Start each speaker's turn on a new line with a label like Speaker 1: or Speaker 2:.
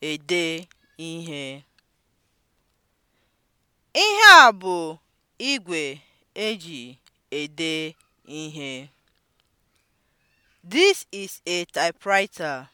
Speaker 1: ede ihe. Ihe a bụ igwe eji ede ihe. This is a typewriter.